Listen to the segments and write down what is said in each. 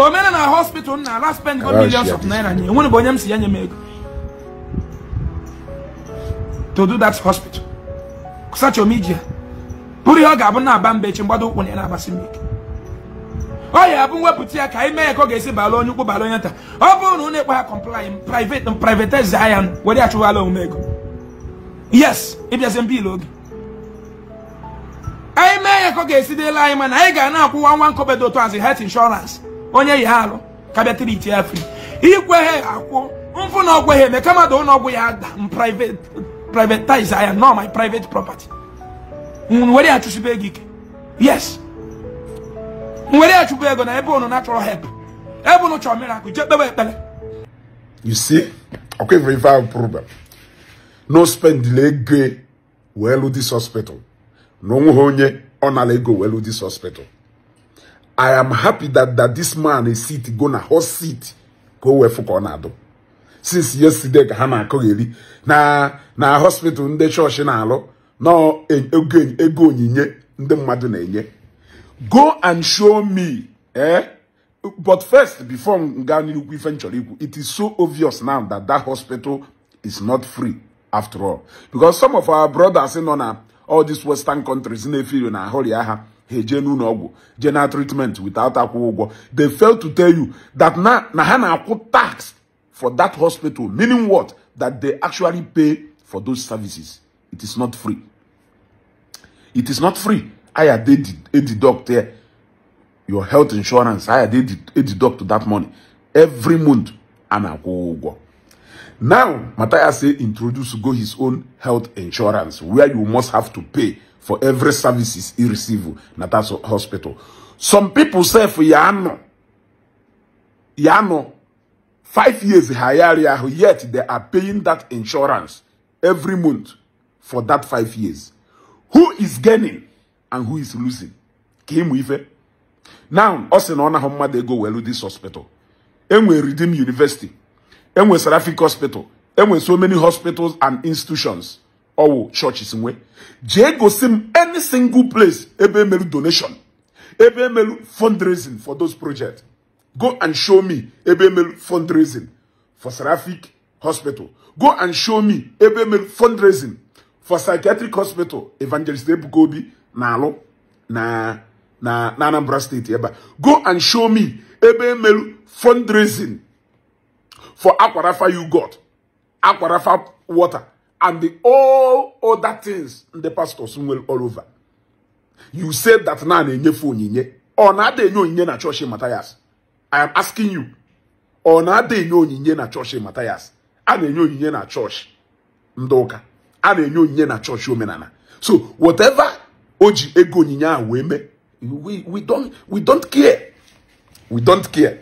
omena na hospital na ala spend go millions of naira nye enwere bụ onye m ego to do that hospital such omijia bụrụ ihe ọ ga-abụ na mbechi mba echi mgbado ụkwụ na ya na-abasị m ọ ya abụ mwepụta ya ka anyị mee ka ọ ga-esi bala onye ukwu bala onye ọ bụrụ na ụnụ ekpe ha kọmplai privatize ya were achụwala yes ịbịazie mba anyị mee ya ka ọ ga-esi dịla anyị mana anyị ga na-akwụwa nwa nkobedo health insurance onye ya ha alụ kabịa triti ya fri ikwe ha akwụ mfụ na ọgwụ ha eme kama da ụlọ ọgwụ ya ada privatize ya nọ my private property nwere ya chụsibe ego ike yes nwere ya chụbụ ego na ebe ụnụ natural help ebe ụnụ chọrọ miracle jee kpebe ekpere you see ọkwa ife ife ahụ problem no spendile ego wee lụ dis hospital na onwe ha onye ọ nara ego wee lụ dis hospital i am happy that that this man is sit go na host seat go o na-adụ since yesterday ka ha na-akọgheri na na hospital ndị chọọchị na-alụ ego onyinye nde e, e, e, mmadụ na-enye go and show me eh but first before m gaa n'ikwu ife nchọrọ ikwu it is so obvious now that that hospital is not free after all because some of our brothers nọ na all these western countries na-efiri na ahụrịa ha ha treatment without akwụ they failed to tell you that na na ha na tax for that hospital meaning what that they actually pay for those services it is not free it is not free I had a doctor your health insurance aya a deduct that money every month a na now Matthias introduced go his own health insurance where you must have to pay for every services he receive in that hospital. Some people say for Yano, Yano, five years higher, yet they are paying that insurance every month for that five years. Who is gaining and who is losing? Kim Weaver. Now, us in honor how they go well with this hospital. And we Redeem University. And we Seraphic Hospital. And we so many hospitals and institutions ọwụ chọọchị in jee gosi m any single place ebe donation ebe fundraising for those projects go and show me ebe fundraising for seraphic hospital go and show me ebe fundraising for psychiatric hospital evangelist ebuka nalo na-alụ na na anambra steeti ebe go and show me ebe fundraising for aquarafa you got aquarafa water and the all other things ndị pastors nwere all over you said that na na-enyefe onyinye ọ na-ada onyinye na chọọchị Matthias I am asking you ọ na-ada onyinye na chọọchị Matthias a na-enye onyinye na chọọchị ndoka ụka a na-enye onyinye na chọọchị omenala so whatever o ji ego onyinye ahụ eme we we don't we don't care we don't care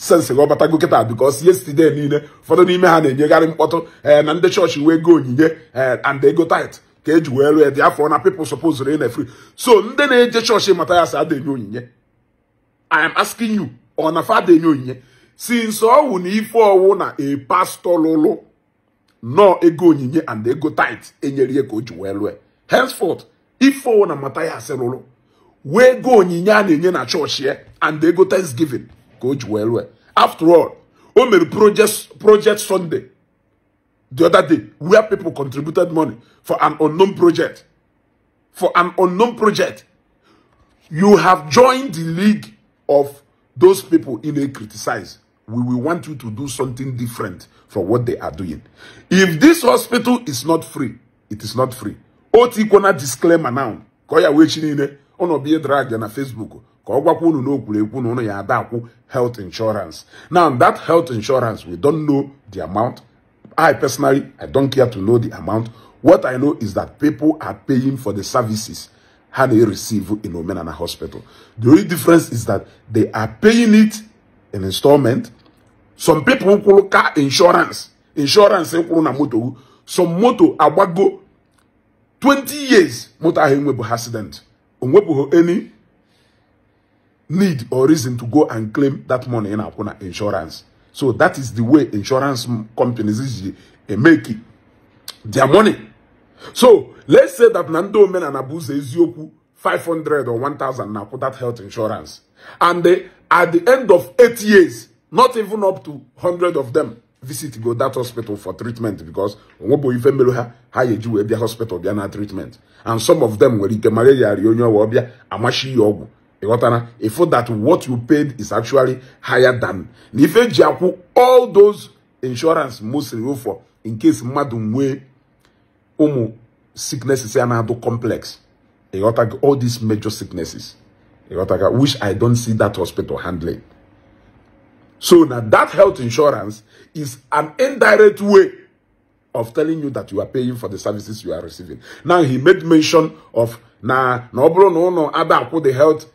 sensị ga ọbatago kịta bikos yesterday niile ụfọdụ n'ime ha na-enyegharị mkpọtụ ee eh, na ndị chọọchị wee eh, go onyinye ee and ego tait ka eji wee lụọ dị afọ na people suppose na free so ndị na-eje chọọchị mata ya si adenye onyinye i am asking you ọ na fa adenye onyinye since ọwụ na ife ọwụ na a pastor lụlụ nọọ ego onyinye and ego tait enyere ihe ka o ji wee lụọ henceforth ife ọwụ na mata ya asị lụlụ wee go onyinye a na-enye na chọọchị and ego thanksgiving Go well, well. after all only project project sunday the other day where people contributed money for an unknown project for an unknown project you have joined the league of those people in a criticize we will want you to do something different from what they are doing if this hospital is not free it is not free otu ikona disclaimer now ka ọ ne ono chi a drag ya na facebook ka ọ gwakwa na unu ya ada akwụ health insurance now that health insurance we don't know the amount i personally i don't care to know the amount what i know is that people are paying for the services ha na receive in omenala hospital the only difference is that they are paying it in installment some people kwụrụ car insurance insurance kwụrụ na moto some moto agbago 20 years moto ahụ enwebụ accident onwepụghị any need or reason to go and claim that money in our insurance. So that is the way insurance companies is eh, eh, making their money. So let's say that Nando men and Abuze Ezioku 500 or 1000 now for that health insurance. And they, at the end of eight years, not even up to 100 of them visit go that hospital for treatment because Omobo Ifemelu ha yeju the hospital bia treatment. And some of them were ike malaria, Amashi Yogu. ịghọtara ịfụ that what you paid is actually higher than na ife all those insurance mostly for in case Madumwe omo sicknesses ya na complex. complex ịghọtago all these major sicknesses ịghọtaga which i don't see that hospital handling so now that health insurance is an indirect way of telling you that you are paying for the services you are receiving now he made mention of na na bro no no ụnụ the health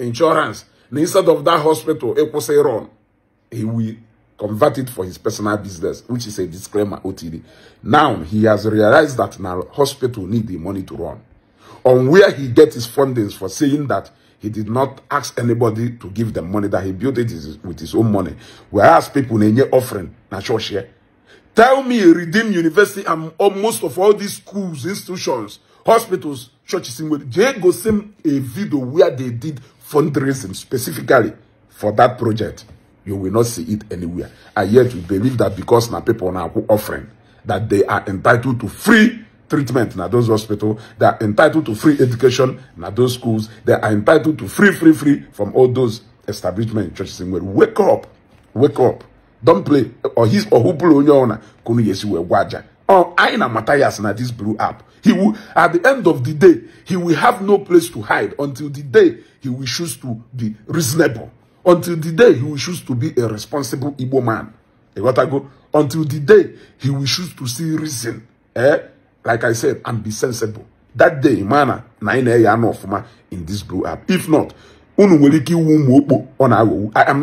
insurance instead of that hospital say run. he will convert it for his personal business which is a disclaimer otd now he has realized that now hospital need the money to run on where he get his fundings for saying that he did not ask anybody to give them money that he built it with his own money whereas people in enye offering na church tell me redeem university and almost of all these schools institutions hospitals churches in where they go send a video where they did fundraising specifically for that project, you will not see it anywhere. And yet you believe that because now people now offering that they are entitled to free treatment in those hospitals, they are entitled to free education in those schools, they are entitled to free, free, free from all those establishment in churches. Well, wake up, wake up, don't play. Or his or who blew on your own, or oh, Aina Matthias now this blew up. He will, at the end of the day, he will have no place to hide until the day he will choose to be reasonable. Until the day he will choose to be a responsible Igbo man. You got go? Until the day he will choose to see reason. Eh? Like I said, and be sensible. That day, mana, na ina ya fuma in this blow up. If not, I am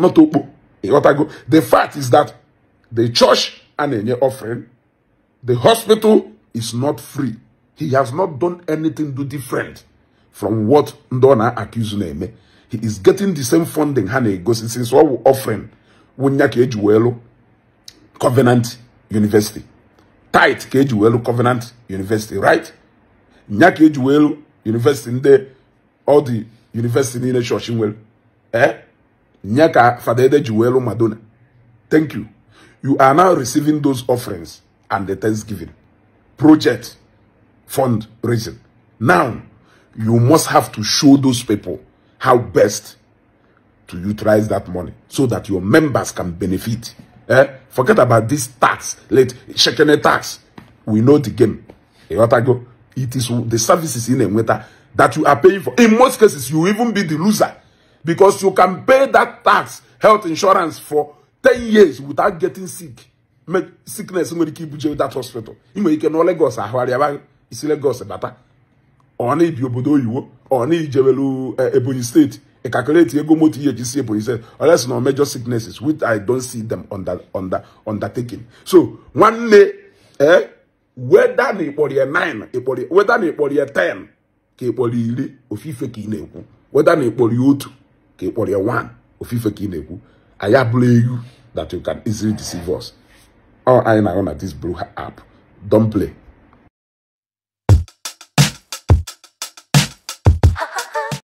not opo. You got I go? The fact is that the church and any offering the hospital is not free. He has not done anything do different from what Ndona accused him. He is getting the same funding honey. Because since all offering Wunyaki Ejuelo Covenant University. Tight Kejuelo Covenant University, right? Nyaki Ejuelo University in the all the university in the church in Eh? Nyaka Fadede Juelo Madonna. Thank you. You are now receiving those offerings and the Thanksgiving project fundraising. Now, you must have to show those people how best to utilize that money so that your members can benefit. Eh? Forget about this tax, late checking a tax. We know the game. It is the services in a winter that you are paying for. In most cases, you even be the loser because you can pay that tax, health insurance for 10 years without getting sick. sickness nwere ike ibuje that hospital ị nwere ike nọ Lagos ahụgharịaba isi Lagos bata ọ na-ebi obodo oyiwo ọ na-ijewelu eh, Ebonyi steeti ị calculate ego moto ihe ji si Ebonyi steeti unless na major sicknesses which I don see them undertaking so nwanne ee eh, weda na ịkpọrọ ya 9 weda na ịkpọrọ ya 10 ka ịkpọrọ iri ofufe ka ị na-ekwu weda na ịkpọrọ ya otu ka ịkpọrọ ya 1 ofufe ka ị na-ekwu anyị abụla egwu that you can easily deceive us all anyị na-ahụ na this ha apụ don't play